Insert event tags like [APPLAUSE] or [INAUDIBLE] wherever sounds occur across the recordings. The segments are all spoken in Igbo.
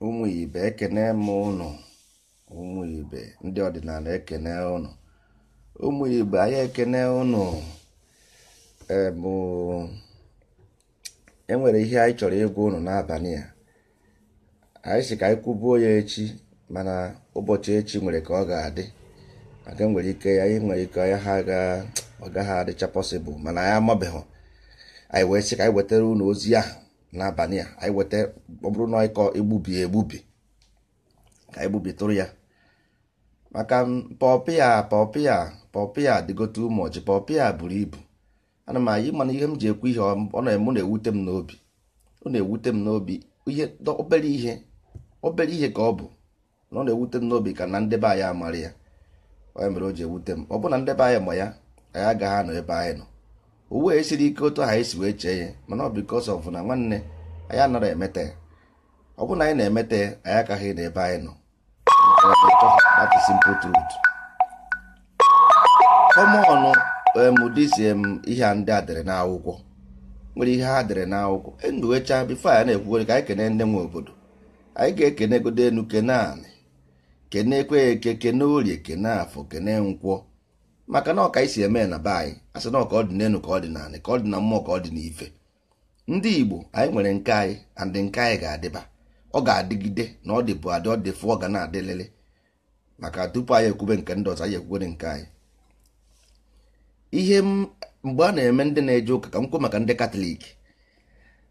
ụmụ ibe ekene m ụnụ ụmụ ibe ndị ọdịnala ekene ụnụ ụmụ ibe anyị ekene ụnụ enwere e ihe anyị chọrọ ịgwa ụnụ n'abalị a anyị si ka anyị kwubuo ya echi mana ụbọchị echi nwere ka ọ ga-adị aga nwere ike ya nwere ike ya ha ọ gaghị adịcha pọsịbụl mana anyị amabeghị anyị wee sị ka anyị wetara unu ozi ahụ n'abalị a anyị weta ọ na ịkọ egbubi egbubi ka igbubi tụrụ ya maka pọpịa pọpịa pọpịa dịgote ụmụ ọjị pọpịa buru ibu ana m anyị mana ihe m ji ekwu ihe ọ na-eme na-ewute m n'obi ọ na-ewute m n'obi ihe obere ihe obere ihe ka ọ bụ na ọ na-ewute m n'obi ka na ndebe anyị amara ya onye mere o ji ewute m ọ bụrụ na ndebe anyị ma ya anyị agaghị anọ ebe anyị nọ uwe siri ike otu anyị si wee chee ya mana ọ bikos na nwanne anyị anaghị emete ya ọ bụrụ na anyị na emeta ya anyị agaghị na ebe anyị nọ that is simple truth kọmọnụ emụdisi um, m um, ihe ndị a dere n'akwụkwọ nwere ihe ha dere n'akwụkwọ enduwecha bifo anyị na-ekwugoro ka anyị kene ndị nwe obodo anyị ga-ekene egodo enu kene anị kenekwe eke kene orie kene afọ kene nkwọ maka na ọka anyị si eme na be anyị asị na ọka ọ dị n'elu ka ọ dị ka ọ dị na mmụọ ka ọ dị n'ife ndị Igbo anyị nwere nke anyị andị nke anyị ga-adịba ọ ga-adịgide na ọ dịbụ adị ọ dị fụ ọ ga na-adịlele maka tupu anyị ekwube nke ndị ọzọ anyị ekwubere nke anyị ihe mgbe a na-eme ndị na-eje ụka ka m maka ndị katọlik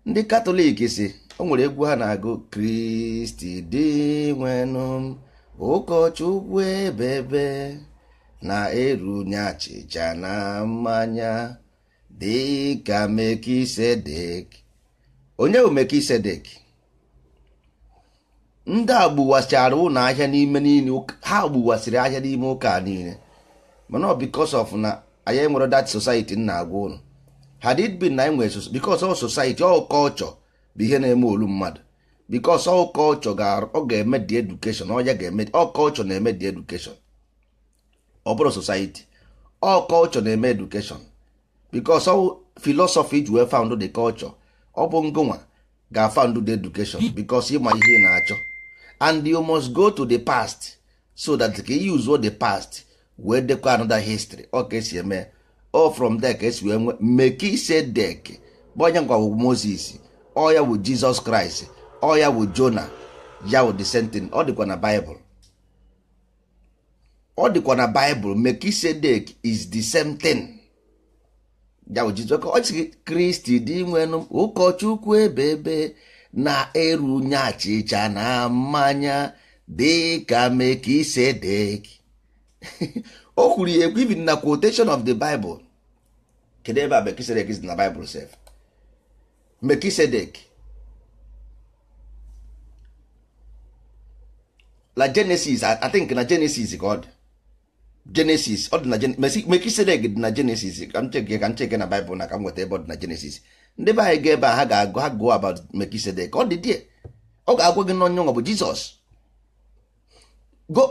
ndị katọlik si o nwere egwu ha na-agụ kristi dị nwenụ ụkọchukwu ebebe na-erunye achịcha na mmanya dịka Mekisedek onye bụ Mekisedek ndị a gbuwasịara ụlọ ahịa n'ime niile ha gbuwasịrị ahịa n'ime ụka niile mana ọ because of na anyị nwere that society na agwa ụlọ had it been na anyị nwere because ọ society ọ culture bụ ihe na-eme olu mmadụ bikos ọ kọlchọ ọ ga-eme di edukeshon ọ ya ga-eme ọ kọlchọ na-eme di edukeshon ọ bụrụ society ọ kọlchọ na-eme edukeshon bikos ọ filosofi ji wee found the culture ọ bụ ngụnwa ga-afound the education bikos ịma ihe na-achọ and you must go to the past so that ka i use the past wee dekwa another history ọ ka esi eme o from there ka esi wee nwee make ise dek bụ Moses ọ ya bụ Jizọs Kraịst ọ ya wụ jona ya wụ disentin ọ dịkwa na baịbụl ọ dịkwa na baịbụl mekisedek is the same thing ya wụ jizọs ọ sị kristi dị nwenụ ụkọchukwu ebe ebe na-erunye achịcha na mmanya dịka mekisedek o kwuru ya ekwu na quotation of the bible kedu ebe a mekisedek is na bible sef mekisedek na genesis i think na genesis god genesis dị ọ dị na jenesis mekisedek dị na genesis ka m cheke ka m cheke na baịbụl na ka m nweta ebe ọ dị na genesis ndị be anyị ga ebe a ha ga-agụ ha gụọ about mekisedek ọ dị die ọ ga-agwa gị n'onye ọ bụ jizọs go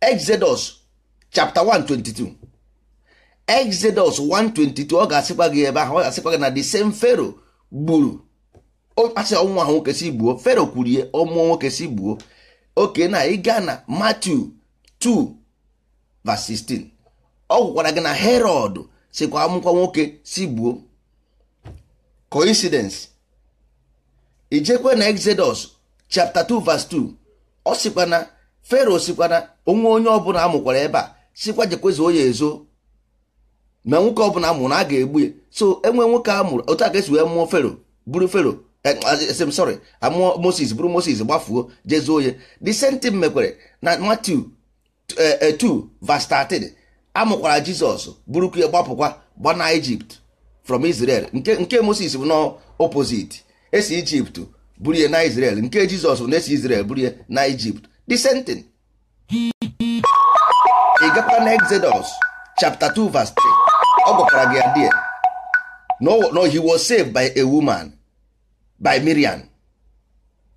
exodus chapter 122 exodus 122 ọ ga-asịkwa gị ebe ahụ ọ ga-asịkwa gị na the same pharaoh gburu ọkpasị ọnwụnwa ahụ nwoke si gbuo fero kwurie ọmụọ nwoke si gbuo oke na ịga na Matthew 2 vs 16 ọ gwụkwara gị na Herod sikwa amụkwa nwoke si gbuo coincidence ijekwe na Exodus chapter 2 verse 2 ọ sikwa na fero sikwa na onwe onye ọbụla amụkwara ebe a sikwa jekwezuo ya ezo ma nwoke ọbụla amụrụ a ga-egbu ya so enwe nwoke amụrụ otu a ka esi wee mụọ fero buru fero m eh, sorry amụọ ah, Moses bụrụ Moses gbafuo jezuo onye the same thing mekwere na Matthew 2 eh, eh, verse 13 amụkwara Jizọs bụrụkwa ya gbapụkwa gbana Egypt from Israel nke nke Moses bụ na esi Egypt buru ya na Israel nke Jizọs bụ na esi Israel buru ya na Egypt the same thing ị gakwa na Exodus chapter 2 verse 3 ọ gwakwara gị ya die no he was saved by a woman by Miriam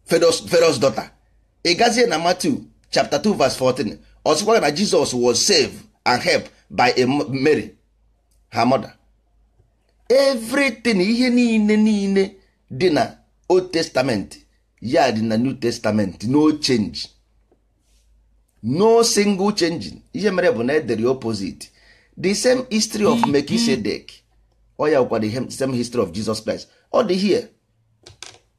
Pharaoh's daughter ị gazie na Matthew chapter 2 verse 14 ọ na jesus was saved and helped by a Mary her mother everything ihe niile niile dị na Old Testament ya dị na New Testament no change no single changing ihe mere bụ na edere opposite the same history of Melchizedek ọ ya gwara the same history of Jesus Christ ọ dị here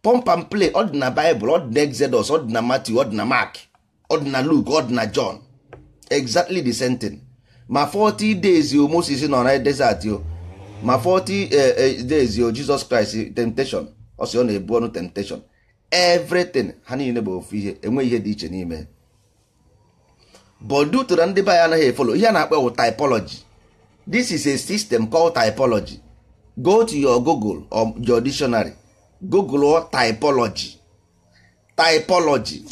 pọmp and play ọ dị na baịbụl ọ dị na exodus ọ dị na matthew ọ dị na mark ọ dị na luke ọ dị na john exactly the same thing ma 40 days o moses nọ na desert o ma 40 eh, eh, days o jesus christ temptation ọ sị ọ na-ebu ọnụ temptation everything ha niile bụ ofu ihe enweghị ihe dị iche n'ime but due na ndị be anyị anaghị efolo ihe a na-akpọ wụ typology this is a system called typology go to your google or your dictionary google typology typology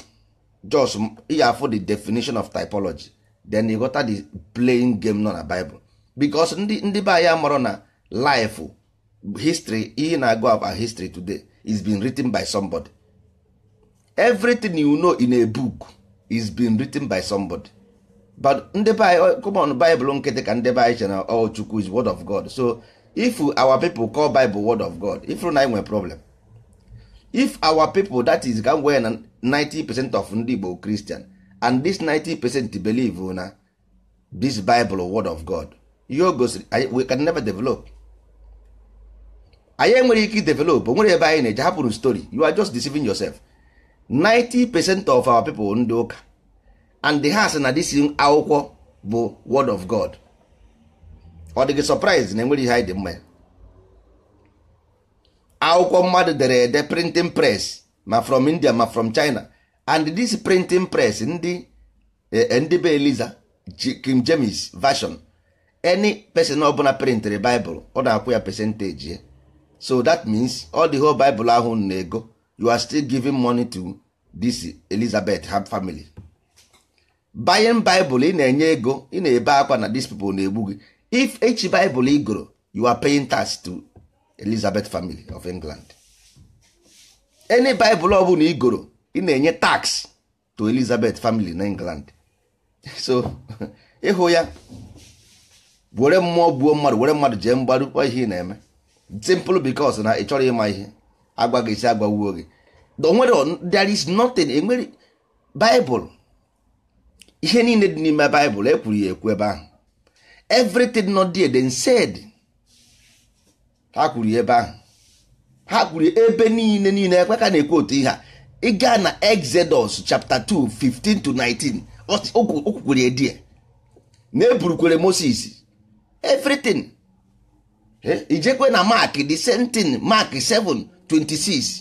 just ya afọ the definition of typology then you got the playing game nọ na bible because ndị ya be na life history ihe na go about history today is being written by somebody everything you know in a book is being written by somebody but ndị be common come on bible nkịtị ka ndị be anyị ọ oh, chukwu is word of god so if our people call bible word of god if na im nwere problem if our people that is ka na 90 percent of ndị Igbo Christian and this 90 percent believe na this Bible word of God you o gosiri we can never develop anyị enwere ike develop nwere ebe anyị na-eje hapụrụ story you are just deceiving yourself 90 percent of our people ndị ụka and the ha sị na this akwụkwọ bụ word of God ọ dịghị surprise na enwere ihe anyị dị mma ya akwụkwọ mmadụ dere ede printing press ma from India ma from China and this printing press ndị e, e, ndị be Eliza King James version any person ọbụla printịrị Bible ọ na-akwụ ya percentage ya so that means all the whole Bible ahụ na-ego you are still giving money to this Elizabeth ha family buying Bible ị na-enye ego ị na-ebe akwa na these people na-egbu gị if each Bible ị goro you are paying tax to Elizabeth family of England any Bible ọ bụla igoro ị na-enye tax to Elizabeth family na England [LAUGHS] so [LAUGHS] ịhụ ya were mmụọ gbuo mmadụ were mmadụ jee mgbaru kwa ihe ị na-eme simple because na ị chọrọ ịma ihe agwa gị isi agbagboo gị onwere there is nothing enwere Bible ihe niile dị n'ime Bible ekwuru ya ekwu ebe ahụ everything not there then said ha kwuru ebe ahụ ha kwuru ebe niile niile ekwe ka na-ekwu otu ihe a ịga na exodus chapter 2 15 to 19 okwukwere edie na eburukwere moses everything eh, ijekwe na mark the same thing mark 7 26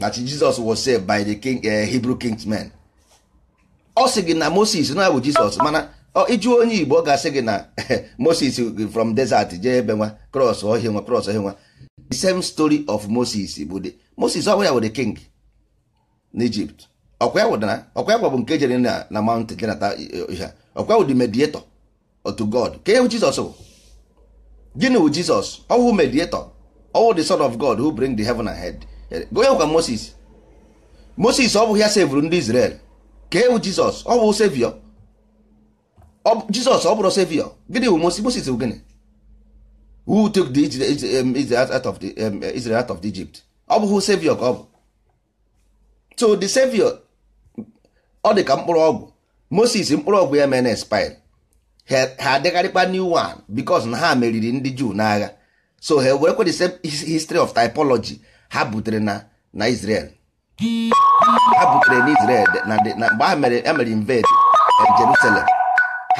that jesus was saved by the king, eh, hebrew kingsmen ọ sị gị na moses na bụ jesus mana ịjụ onye Igbo ọ ga-asị gị na [LAUGHS] Moses from desert jee ebe nwa cross ọhịa nwa cross ọhịa nwa the same story of Moses bụ de Moses ọkwa ya were king n'Ijipt ọkwa ya wụdara ọkwa ya gwa bụ nke jere na na mountain jenata ihe ọkwa wụ the mediator otu God ka ewu Jizọs bụ gịnị wụ Jizọs ọwụ mediator ọwụ the son of God who bring the heaven and head ya kwa Moses Moses ọ bụghị ya sevụrụ ndị Israel ka ewu Jizọs ọ bụ sevio jizọs ọ bụrụ sevio gịnị bụ moses bụ gịnị who took the um, um, uh, Israel out of the Egypt ọ bụ sevio ka ọ bụ so the sevio ọ dị ka mkpụrụ ọgwụ moses mkpụrụ ọgwụ ya mere na expire ha adịgharịkwa new one because na ha meriri ndị juu n'agha so ha werekwa the same history of typology ha butere na na Israel ha butere na Israel na mgbe ha mere invade um, Jerusalem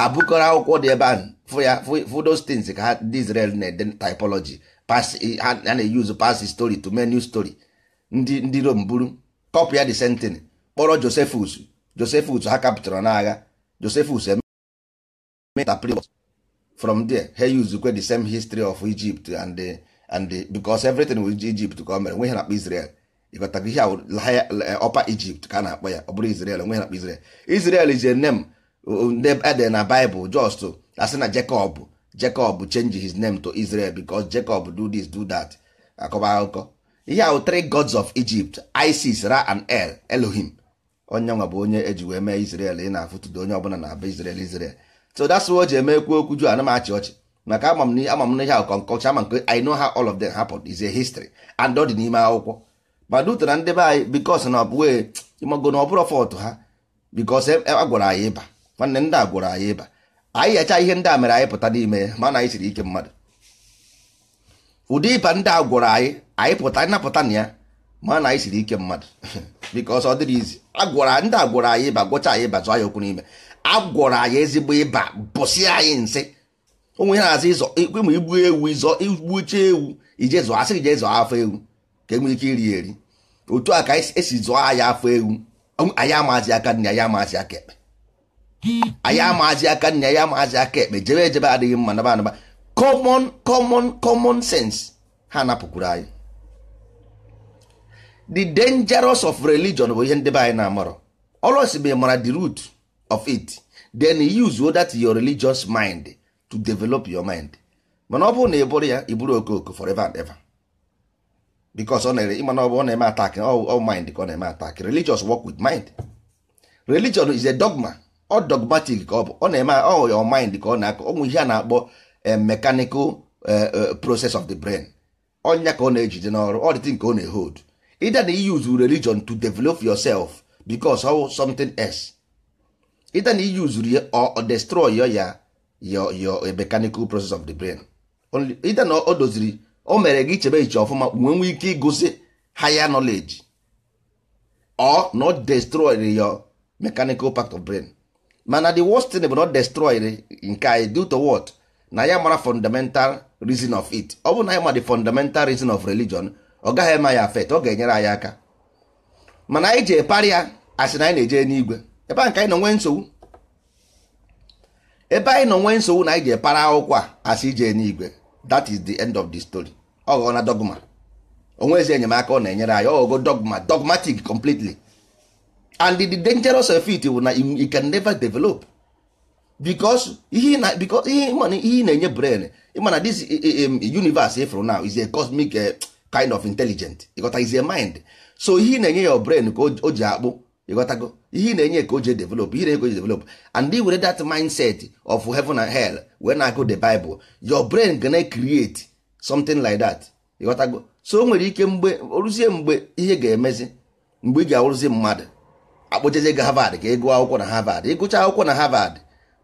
ha bukọrọ akwụkwọ dị ebe ahụ fụ ya fụ those ka ha ndị Israel na-ede typology pass ha na-eyuzu pass story to menu story ndị ndị Rom buru kọpụ ya the sentin kpọrọ Josephus Josephus ha kapụtara n'agha Josephus emeinterpret from there ha yuzukwe the same history of Egypt and the, and the, because everything with Egypt ka o mere nwe ha na-akpọ Israel ịghọtago ihe ọpa Egypt ka a na-akpọ ya ọ bụrụ nwe na ndị ede na Bible just asị na Jacob Jacob change his name to Israel bicos Jacob do this do that akọba akụkọ ihe ahụ three gods of Egypt Isis Ra and El Elohim onye nwa bụ onye eji wee mee Israel ị na-afụtụdo onye ọbụla na-aba Israel Israel so that's why e ji eme ekwu okwu ju ana m achị ọchị maka ama m ama m n'ihe akọnkọcha ama nke I know how all of them happened is a history and ọ dị n'ime akwụkwọ ma dutara ndị be anyị bikos na ọ ịmago na ọ bụrụ fọtụ ha bikos e, a gwara anyị ịba nwanne ndị a gwọrọ anyị ịba anyị yacha ihe ndị a mere anyị pụta n'ime ya mana anyị siri ike mmadụ ụdị ịba ndị a gwọrọ anyị anyị pụta anyị napụta na ya mana anyị siri ike mmadụ [LAUGHS] biko ọsọ dịrị izi agwọrọ ndị a gwọrọ anyị ịba gwọcha anyị ịba zụọ anyị okwu n'ime a agwọrọ anyị ezigbo ịba bụsị anyị nsị onwe ha na-azụ ịzọ ịkwemụ igbu ewu ịzọ igbuche ewu ije zụọ asị ije zụọ afọ ewu ka enwee ike iri eri otu a ka esi zụọ anyị afọ ewu anyị amazi aka nne anyị amazi aka ekpe Aya maazị aka nna ya amaazi aka ekpe jebe ejebe adịghị mma naba anaba common common common sense ha napụkwuru anyị the dangerous of religion bụ ihe ndebe be anyị na-amarọ olos bụ mara the root of it then use that your religious mind to develop your mind mana ọ bụrụ na ị bụrụ ya ị bụrụ okooko forever and ever because ọ na-ere ịmana ọ bụ ọ na-eme attack all mind ka ọ na-eme attack religious work with mind religion is a dogma ọ dogmatic ka ọ bụ ọ na-eme ọ your mind ka ọ na-akọ onwe ihe a na-akpọ eh, mechanical eh, eh, process of the brain ọnya ka ọ na-ejide n'ọrụ ọ dịtị nke ọ na ehod either na use religion to develop yourself because of something else either na use ya or destroy ya your mechanical process of the brain either na o doziri o mere gị chebe iche ọfụma nwee nwee ike igosi higher knowledge or not destroy your mechanical part of brain mana the worst thing bụ not destroy nke anyị due to what na ya mara fundamental reason of it ọ bụ na ya ma the fundamental reason of religion ọ gaghị eme ya afet ọ ga-enyere anyị aka mana anyị ji epari ya asị na anyị na-eje n'igwe ebe nke anyị nọ nwee nsogbu ebe anyị nọ nwee nsogbu na anyị ji epara akwụkwọ a asị ije n'igwe that is the end of the story ọ ghọọ na dogma onwezi enyemaka ọ na-enyere anyị ọ ghọgo dogma dogmatic completely and the dangerous effect wụ na you can never develop because ihe na because na-enye brain ịmana this universe ifụrụ now is a cosmic kind of intelligent ịghọta is a mind so ihe na-enye your brain ka o ji akpụ ịghọtago ihe na-enye ka o ji develop ihe na-enye ka o ji develop and were that mindset of heaven and hell wee na-agụ the bible your brain gonna create something like that ịghọtago so o nwere ike mgbe oruzie mgbe ihe ga-emezi mgbe ị ga-awụrụzi mmadụ akpọjeje gị harvard ka ị e gụọ akwụkwọ na harvard ịgụcha e akwụkwọ na harvard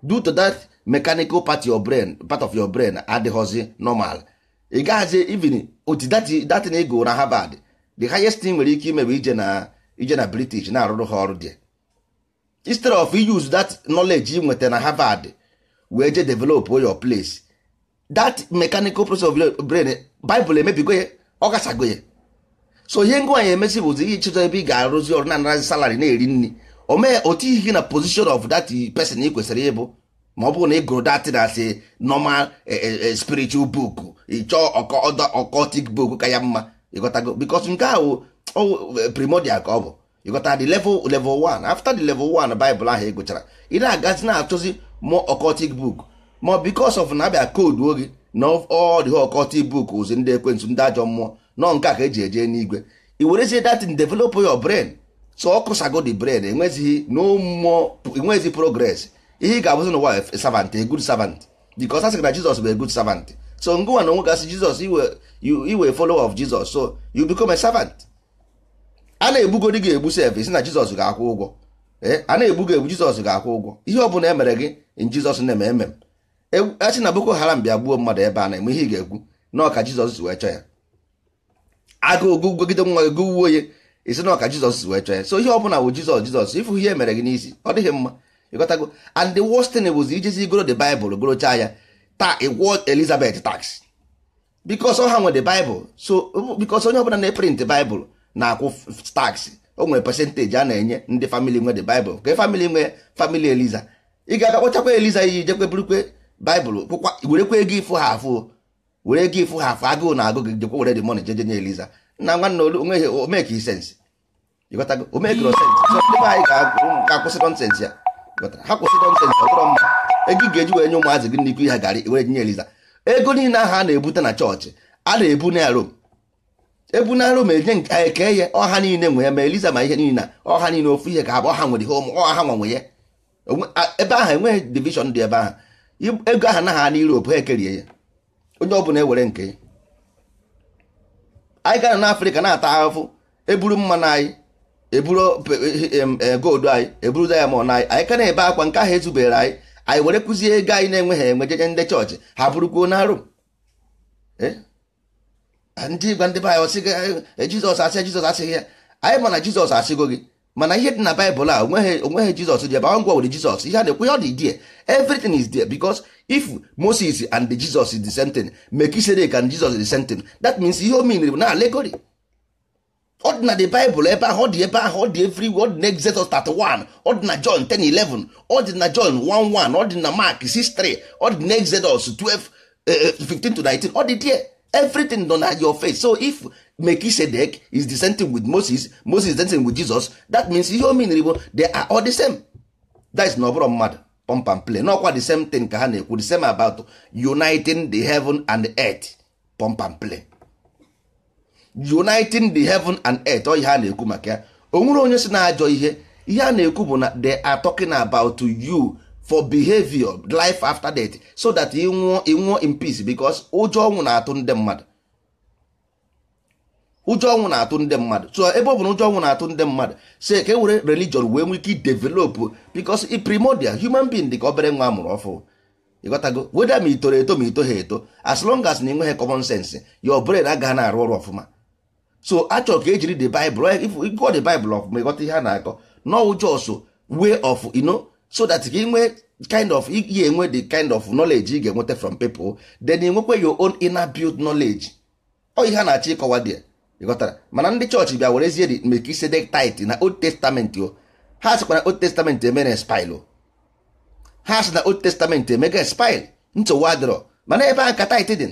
due to that mechanical part of your brain part of your brain adịghọzi normal ị gaghazi even oti datin ị ego na harvard the highest thing nwere ike ime bụ ije na british na-arụrụ ha ọrụ dị instead of use that knowledge ị nweta na harvard wee je develop your place that mechanical process of your brain bible emebigo ya ọ gasago ya so ihe ngwa anyị emesi bụzi ịchịta ebe ị ga-arụzi ọrụ na-anarazi salari na-eri nri omee otu ihe na position of that person ị kwesịrị ịbụ ma ọ bụrụ na ị gụrụ datị na asị normal eh, eh, eh, spiritual book ịchọọ e occultic book ka ya mma ịghọtago because nke oh, oh, ahụ primordial ka ọ bụ ịghọta the level level 1 after the level 1 Bible ahụ ị e gụchara ị na-agazi na-achọzi mụ occultic book ma because of na-abịa koodu oge na all the occultic book ụzi ndị ekwentị ndị ajọ mmụọ nọ nke a ka eji eje n'igwe i werezie datin develop your brain so ọ the brain enwezighị n'ụmụ enwezighị progress ihe ị ga-abụzi n'ụwa servant a good servant because a sị na Jizọs bụ a good servant so ngụwa na onwe gasị Jizọs iwe folowe of Jizọs so you become a servant a na-egbugodi gị egbu sef isi na Jizọs ga-akwụ ụgwọ eh, a na-egbu gị egbu Jizọs ga-akwụ ụgwọ ihe ọ bụla emere gị in na-eme eme e, a sị na Boko Haram bịa gbuo mmadụ ebe a na-eme ihe ị ga-egwu na ọka Jizọs wee chọọ ya agụụ gogide nwa gị gụwuo onye isi na ọka jizọs wee chọọ ya so ihe ọ bụla bụ jizọs jizọs ịfụ ihe e mere gị n'isi ọ dịghị mma ịghọtago and the worst thing was ijezi goro the bible gorochaa ya taa ịgwọ elizabeth tax because ha nwe the bible so um, because onye ọbụla na-eprint bible na-akwụ tax o nwere percentage a na-enye ndị famili nwe the bible ka famili nwe family eliza ị ga-aga eliza iyi jekwe burukwe bible kwụkwa werekwa ego ịfụ ha afụ were gị ịfụ ha afọ agụụ na agụ gị jekwa were dị mọni jeje nye eliza na nwanne olu onweghị omeke sensị ịghọtago omekiro oh, sensị so ndị anyị ga-akwụsị nọnsensị ya ha kwụsị nọnsensị ọtọrọ mma ego ị ga-eji wee nye ụmụazị gị n'ikwu ha garị were nye eliza ego niile ahụ a na-ebute na chọọchị a na-ebu na rom ebu na rom enye nke anyị ka eye ọha niile nwe ya ma eliza ma ihe niile ọha niile ofu ihe ka ha ọha nwere ihe ụmụ ọha nwanwe ya ebe ahụ enweghị divishọn dị ebe ahụ ego ahụ na ha na Europe ekerie ya onye ọ bụla ewere nke anyị gara n'afrịka na-ata ahụhụ eburu mmanụ e anyị eburu goldu anyị eburu diamond anyị anyị ka na-ebe akwa nke ahụ ezubere anyị anyị were kụzie ego anyị na-enweghị enwe jeje ndị chọọchị ha bụrụkwuo na arụ eh? ndị igwe ndị be anyị ọsị gị eh, jizọs asị jizọs asịghị ya anyị ma na jizọs asịgo gị mana ihe dị na baịbụl a onweghị onweghị jizọs ji ebe ngwa were jizọs ihe a na-ekwu ya ọ dị die everything is there because if moses and the jesus is the same thing melchizedek and jesus is the same thing that means ihe o bụ na alegori. ọ dị na the bible ebe ahụ ọ dị ebe ahụ ọ dị everywhere ọ dị na exodus 31 ọ dị na john 10:11 ọ dị na john 1:1 ọ dị na mark 6:3 ọ dị na exodus 12 15 to 19 ọ dị there everything nọ na your face so if mekisedek is the same thing with Moses Moses is the same thing with Jesus that means ihe o meniri bụ they are all the same that is na ọbụrụ mmadụ pump and play n'ọkwa the same thing ka ha na-ekwu the same about uniting the heaven and the earth pump and play uniting the heaven and earth ọ oh, ihe a na-ekwu maka ya o nwere onye si na ajọ ihe ihe a na-ekwu bụ na they are talking about you for behavior life after death so that i nwụọ ị nwụọ in peace because ụjọ ọnwụ na-atụ ndị mmadụ ụjọ ọnwụ na-atụ ndị mmadụ so ebe ọ bụ na ụjọ ọnwụ na-atụ ndị mmadụ say ka e were religion wee nwee ike o because i primordial human being dị ka obere nwa amụrụ ọfụ ịghọtago weda ma itoro eto ma ito ha eto as long as na ịnweghị common sense your brain agaghị na-arụ ọrụ ọfụma so achọrọ ka ejiri the bible ịgụọ the bible ọfụma ịghọta ihe a na-akọ no just way of you so that gị nwee kind of ị enwe the kind of knowledge ị ga-enweta from people then ị nwekwe your own inner built knowledge ọ ihe a na-achọ ịkọwa dị ịghọtara mana ndị chọọchị bịa werezie Melchizedek tithe na old testament o ha sịkwa na old testament eme na spil ha sị na old testament emega spil nsogbu mana ebe a ka tithe dị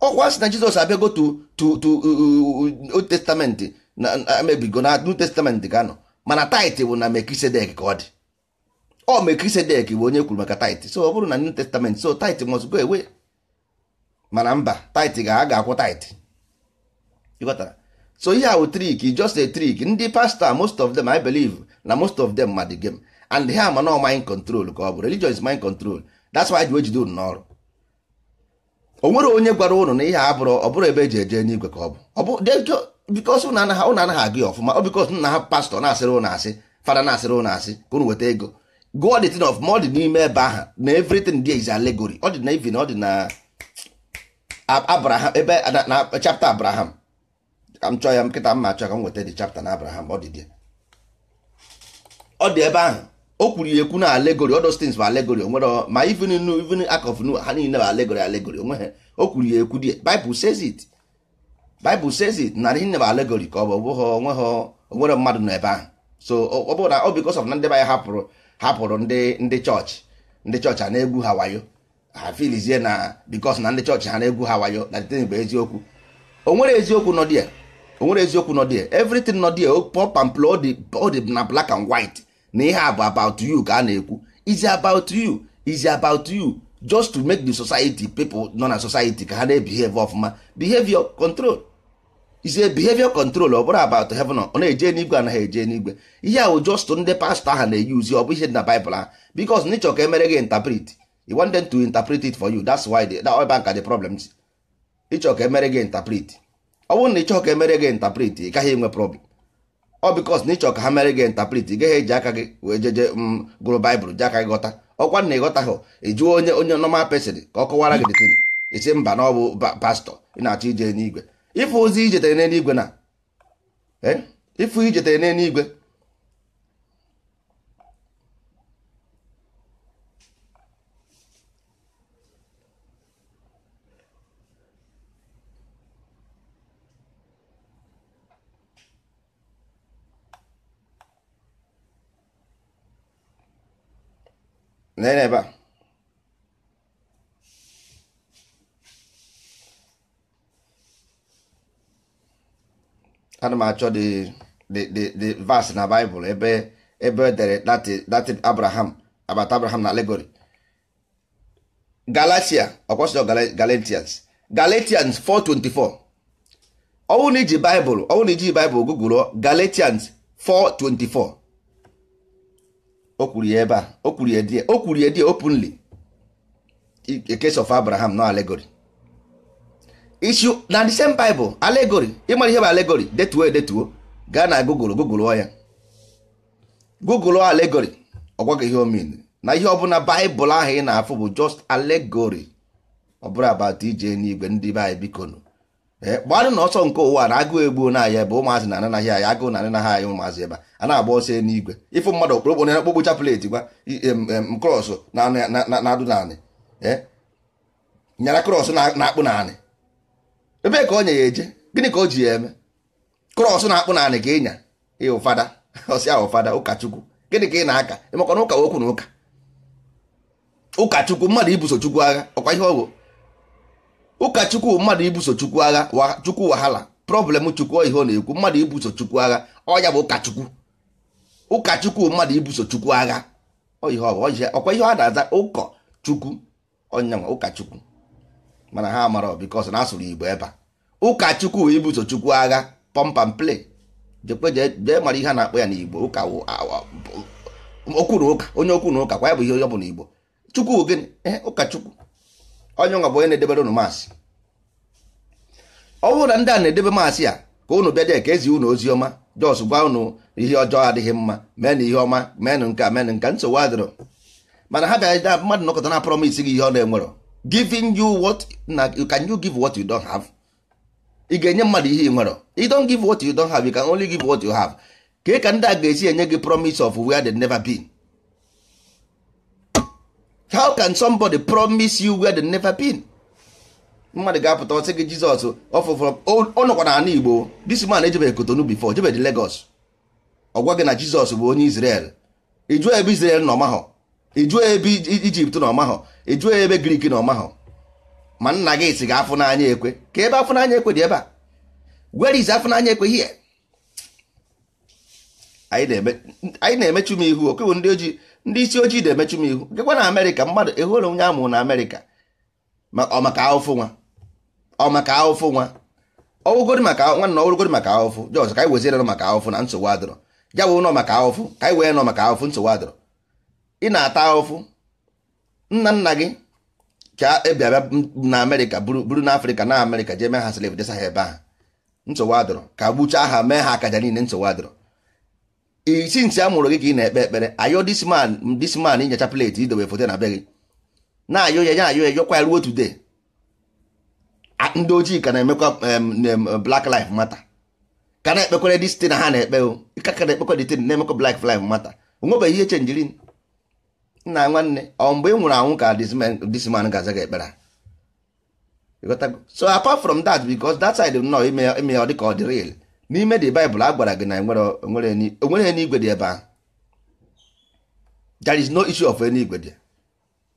ọkwa si na jizọs abịago to to uh, uh, uh, old testament na emebigo na new testament ga-anọ mana tait bụ na mekisedek ka ọ dị ọ mekisedek bụ onye kwuru maka tait so ọ bụrụ na new testament so tait must go away mana mba tait ga-a ga-akwụ tait ịghọtara so ihe ahụ trik just a trik ndị pastọ most of them i believe na most of them ma the game and ha ma na mind control ka ọ bụ religion is mind control that's why ji wee unu n'ọrụ o nwere onye gwara ụnụ na ihe bụrụ ọ bụrụ ebe eji eje n'igwe ka ọ bụ bikos ụnụ anaghị agụ ya ọfụma ọ bikos nna ha pastọ na-asịrị ụnụ asị fada na-asịrị ụnụ asị ka ụnụ weta ego gụọ dị thing of ma ọ dị n'ime ebe aha na everything there is allegory ọ dị na ọ dị na abraham ebe na chapter abraham ka m chọọ ya nkịta mma achọ ka m nweta dị chapta na abraham ọ dị ọ dị ebe ahụ o kwuru ya ekwu na alegori all those things bụ allegory onwere ma even nu even akọf ha niile bụ alegori alegori onwe ha o kwuru ya ekwu die bible says it Bible says it na ihe bụ alegori ka ọ bụ bụghị onweghị onwere mmadụ nọ ebe ahụ so ọ bụrụ na ọ because of na ndị be hapụrụ hapụrụ ndị ndị chọọchị ndị chọọchị a na-egwu ha wayo ha filizie na because na ndị chọọchị ha na-egwu ha wayo na the bụ eziokwu onwere eziokwu nọ dia onwere eziokwu nọ dia everything nọ dia pop and play ọ dị na blak and white na ihe a bụ about you ka a na-ekwu is about you is about you just to make the society people nọ na society ka ha na-ebehave ọfụma behavior control is a behavior control ọ bụrụ about heaven ọ na-eje n'igwe anaghị eje n'igwe ihe ahụ just ndị pastọ ahụ na uzi ọ bụ ihe dị na Bible ha because n'ịchọ ka emere gị interpret you want them to interpret it for you that's why the, that bank are the problems ịchọ ka emere gị interpret ọ bụrụ na ịchọ ka emere gị interpret ị gaghị enwe problem ọ because na ịchọ ka ha mere gị interpret ị gaghị eji aka gị wee jeje m mm, gụrụ baịbụl ji aka gị ghọta ọkwa na ịghọta hụ ịjụọ onye onye normal person ka ọ kọwara gị dị isi mba na ọ bụ pastọ ị na-achọ ije n'igwe ife ozi ijetere n'eluigwe na ife eh? ijetere n'eluigwe na ebe a ana m achọ the verse na Bible ebe ebe edere datin Abraham abat Abraham na alegori. Galatia ọkwasịrị Galatians Galatians 4:24 ọ bụrụ na iji Bible ọ na iji Bible gụgụrụ Galatians 4:24 o kwuru ya ebe a o kwuru ya die o kwuru ya die openly a case of Abraham na allegory issue na the same bible allegory ịmara ihe bụ allegory detuo edetuo gaa na google google ya google allegory ọgwa ihe omin na ihe ọbụla baịbụl ahụ ị na-afụ bụ just allegory ọ bụrụ abat ije n'igwe ndị be anyị biko nụ na ọsọ nke ụwa na agụụ egbuo na bụ ebe ụmụazị na ananaghị Agụ agụụ na ananaghị anyị ụmụazị ebe a na-agba ọsọ n'igwe ịfụ mmadụ okpokpo na okpokpo chapleti gwa krọs na-adụ naanị nyara krọs na-akpụ naanị ebe ka ọ nye ya eje gịnị ka o ji ya eme krọs na-akpụ naanị ka ịnya ya ụfada [LAUGHS] ọsị ahụ ụfada ụkachukwu gịnị ka ị na-aka emekwa na ụka okwu na ụka ụkachukwu mmadụ ibuso chukwu agha ọkwa ihe ọ bụ ụkachukwu mmadụ ibuso chukwu agha chukwu wahala problem chukwu ihe ọ na-ekwu mmadụ ibuso chukwu agha ọ ya bụ ụkachukwu ụkachukwu mmadụ ibuso chukwu agha ọ ihe ọkwa ihe ọ na-aza ụkọ chukwu ọnyanwa ụkachukwu mana ha mara bikos na asụrụ igbo ebe a ụkọchukwu wee ibuso chukwu agha pọmpam play jekwe mara ihe a na-akpọ ya n'igbo ụka okwu na ụka onye okwu na ụka kwa ya bụ ihe onye ọ bụla igbo chukwu gịnị ee eh, ụkọchukwu onye nwa bụ onye na-edebere unu maasị ọ bụrụ na ndị a na-edebe maasị ya ka unu bịa dee ka ezi unu ozi ọma jos gwa unu ihe ọjọọ adịghị mma na ihe ọma meenụ nke a meenụ nke nsogbu adịrọ mana ha bịa mmadụ nọkọta na promis gị ihe ọ na-enwerọ giving you what na can you give what you don't have ị ga-enye mmadụ ihe ị nwere you don't give what you don't have you can only give what you have ka ka ndị a ga-esi enye gị promise of where they never been how can somebody promise you where they never been mmadụ ga-apụta ọsị gị Jizọs ọfụfụrụ ọ n'ala Igbo this man ejebeghị Kotonu before jebeghị Lagos Ọgwa gị na Jizọs bụ onye Israel ị jụọ ebe Israel nọ mahọ ejuo ebe ijipt na ọmahọ ejuo ebe grik na ọmahọ ma nna gị si ga afụnanya ekwe ka ebe afụnanya ekwe dị ebe a where is afụ ekwe here anyị na-emechu m ihu okewu ndị ojii ndị isi ojii na-emechu m ihu gịkwa na amerịka mmadụ ehụrụ onye amụrụ na amerịka ọ maka ahụfụ nwa ọ maka ahụfụ nwa ọwụgodi maka nwanna ọwụrụgodi maka ahụfụ jọs ka anyị weziere maka ahụfụ na nsogbu adịrọ ya bụ nọ maka ahụfụ ka anyị wee nọ maka ahụfụ nsogbu adịrọ ị na-ata ahụfụ nna nna gị ka ebiaba na amerịka buru na afrịka na amerịka jee mee ha slave desa ha ebe ahụ nsogbu adọrọ ka gbuchaa aha mee ha akaja niile nsogbu adọrọ isi ntị a mụrụ gị ka ị na-ekpe ekpere ayọ disman disman inyecha pleti idobe foto na be gị na ayo ya ya ayo ya yọkwa ya ruo tude, ndị ojii ka na-emekwa black life matter ka na-ekpekwere dis na ha na-ekpe o ka na-ekpekwa dị tin na-emekwa black life matter onwebeghị ihe chenjirin nna nwanne ọ um, mgbe ị nwụrụ anwụ ka this man ga-aza gị ekpere so apart from that bicos that side nọ ime ọ dịka ọ dị real n'ime the Bible a gwara gị na onwere onwere eluigwe dị ebe ahụ there is no issue of eluigwe dị